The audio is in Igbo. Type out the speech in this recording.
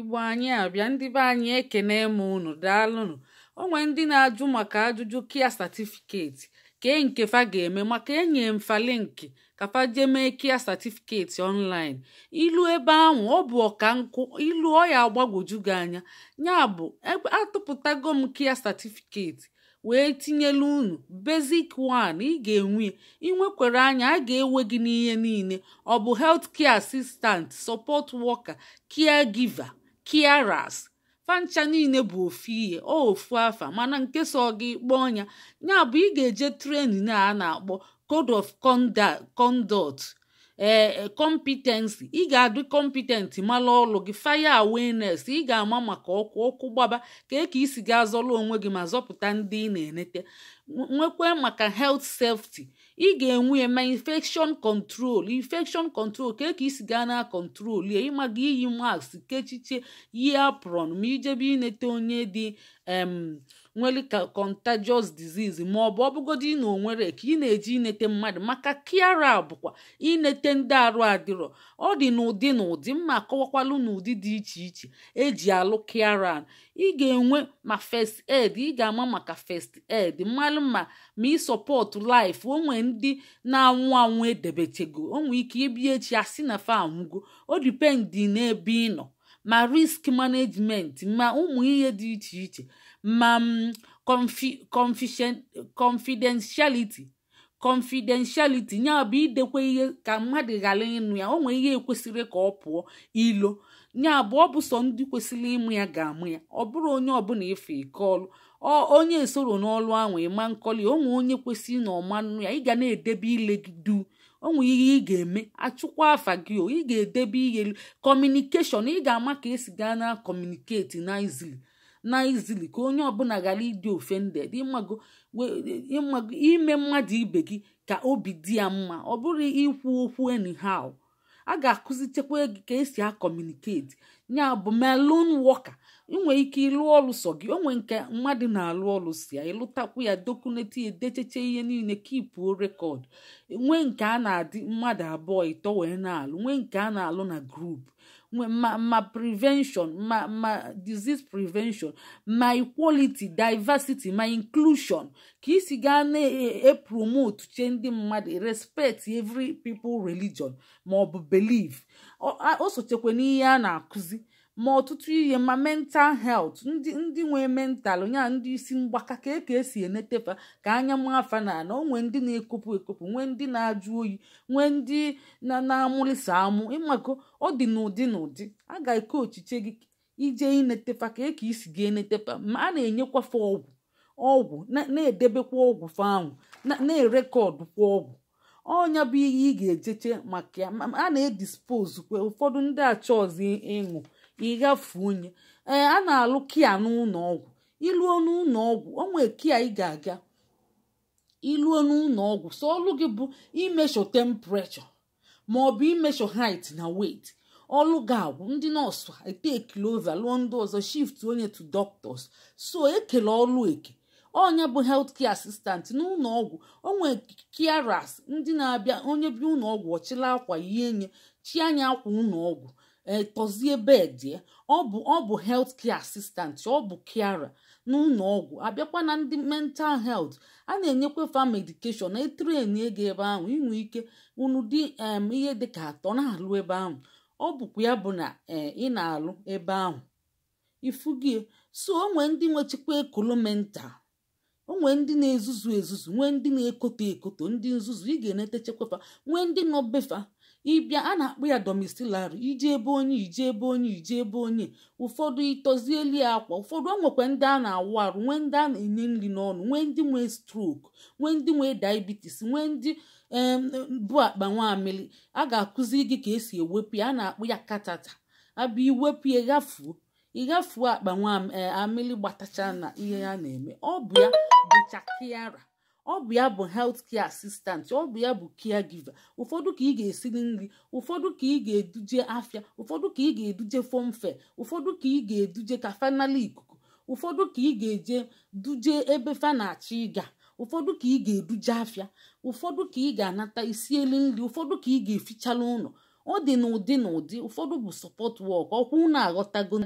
igbo anyị abịa ndị be anyị ekene m unu daalụnụ onwe ndị na-ajụ maka ajụjụ kia satifiketi kee nke fa ga-eme maka enye mfa linki ka fa jee mee kia satifiketi ọnlaịn ilu ebe ahụ ọ bụ ọka nkụ ilu ọ ya agbagwoju gị anya ya bụ atụpụtago m kia satifiketi wee tinyelu unu bezik 1 ị ga-enwe inwekwere anya a ga-ewe gị n'ihe niile ọ bụ helt kia asistant sọpọt wọka kia giva kiaras fancha niile bụ ofu ihe ọ ofu afa mana nke so gị kpọọ ọnya ya bụ ị ga-eje trenin a na-akpọ code of conduct ee eh, eh, ị ga-adị competent mara ọlụ gị faya awenes ị ga-ama maka ọkụ ọkụ gbaba ka e ka isi ga-azọlụ onwe gị ma zọpụta ndị ị na-enete nwekwe maka helt sefti ị ga-enwe ya ma infekshon control infection control ka e ka isi gaa na kọntrol ya ịmaga iyi mask kechiche yi apron ma ijebe inete onye dị nwere contagious disease ma ọ bụ ọbụgodi na onwere ka ị na-eji inete mmadụ maka kiara bụkwa inete ndị arụ adịrọ ọ dị n'ụdị na ụdị mma kọwakwalu n'ụdị dị iche iche eji alụ kiara ị ga-enwe ma first aid ị ga-ama maka first aid mmalụ ma ma ịsọpọtụ life onwe ndị na-anwụ anwụ edebechego nwee ike ịbịa echi asị na fa anwụgo o dipendị n'ebe ị nọ ma risk management ma ụmụ ihe dị iche iche ma um, confi confidentiality confidentiality bụ idekwa ihe ka mmadụ ghara ịnụ ya onwe ihe kwesịrị ka ọ pụọ ilo ya bụ ọ bụ ndị kwesịrị ịmụ ya ga-amụ ya ọ bụrụ onye ọbụla efe ike ọlụ onye soro n'ọlụ ahụ ịma onwe onye kwesịrị na ọmanụ ya ị ga na-edebe ile gị du onwe ihe ị ga-eme achụkwa afa gị o ị ga-edebe ihe kọmunikeshọn ị ga-ama ka esi gaa na kọmuniketi na izili na izili ka onye ọbụla ghara ịdị offended ime mmadụ ibe gị ka obi dị ya mma ọ bụrụ ikwu okwu anyhow a ga-akụzichekwa gị ka esi akọmuniketi ya bụ melon wọka inwere ike ịlụ ọrụ sọ gị onwe nke mmadụ na-alụ ọlụ si ya ịlụtakwu ya dokuneti edecheche ihe niile kipuo rekọd nwee nke a na-adị mmadụ abụọ ịtọ wee na-alụ nwee nke a na-alụ na grupu ma ma prevention ma ma disease prevention ma equality diversity ma inclusion ka isi gaa na-epromote e, che ndị mmadụ respect every people religion ma ọ bụ belief o sochekwa n'ihe a na-akụzi ma ọtụtụ ihe ma mental health ndị ndị nwee mental nya ndị isi mgbaka ka eke esi enetefa ka anya afa na ana onwe ndị na-ekopụ ekopụ nwee ndị na-ajụ oyi nwee ndị na-amụlịsa amụ ịmakọ ọ dị n'ụdị n'ụdị a ga-eke ochiche gị ije inetefa ka eke isi gị enetefa ma a na fa ọgwụ ọgwụ na-edebekwa ọgwụ fanwụ na-erekọdụkwa ọgwụ ọnya bụ ihe ị ga-ejeche maka a na-edispozukwa ụfọdụ ndị achọzi ọzọ ịṅụ ịgafunye ee a na-alụ kia n'ụlọ ọgwụ iluo n'ụlọ onwe kia ị ga-aga iluo n'ụlọ so ọlụ gị bụ imesho temprechọ ma ọ bụ imesho hait na weight ọlụ ga-agwụ ndị nọọsụ ete ova lụọ ndị ọzọ shift onye tu doctors so ekele ọlụ eke onye bụ helt kia asistant n'ụlọ ọgwụ onwe kiaras ndị na-abịa onye bi ụlọ ọchịla akwa ihe nye chi anya akwa ụlọ etọzie eh, bedie eh, ọ bụ ọ bụ health care assistant ọ bụ kiara n'ụlọ ọgwụ abịakwa na ndị mental health a na-enyekwa fa medication na etrenie ego ebe ahụ inwe ike unu dị ihe dị dịka atọ na-alụ ebe ahụ ọ bụkwa ya bụ na eh, ị na-alụ ebe ahụ ifugie so onwe ndị nwechikwa ekolo mental onwe ndị na-ezuzu ezuzu nwee ndị na-ekoto ekoto ndị nzuzu ị ga-enetechekwafa nwee ndị nọ befa ịbịa a na-akpọ ya domestilari iji ebe onye iji ebe onye iji ebe onye ụfọdụ ịtọzieli akwa ụfọdụ o nwekwa ndị a na-awụ arụ nwee ndị a na-enye nri n'ọnụ nwee ndị nwee strok nwee ndị nwee diabetes nwee ndị bụ akpa nwamili a ga-akụziri gị ka esi ewepụ ya a na-akpụ ya katata abịa iwepụ ya ghafuo ịghafuo akpa nwaamili eh, gbatacha na ihe ya na-eme ọ bụ ya bụcha kiara ọ bụ ya bụ helt kia asistant ọ bụ ya bụ kia giva ụfọdụ ka ị ga-esiri nri ụfọdụ ka ị ga-eduje afịa ụfọdụ ka ị ga-eduje fọmfe ụfọdụ ka ị ga-eduje ka fanali ikuku ụfọdụ ka ị ga-eje duje ebe fa na-achọ ịga ụfọdụ ka ị ga-eduje afịa ụfọdụ ka ị ga-anata isi elu nri ụfọdụ ka ị ga-efichala ụlọ ọ dị n'ụdị n'ụdị ụfọdụ bụ sọpọt wọk ọkwụ na aghọtago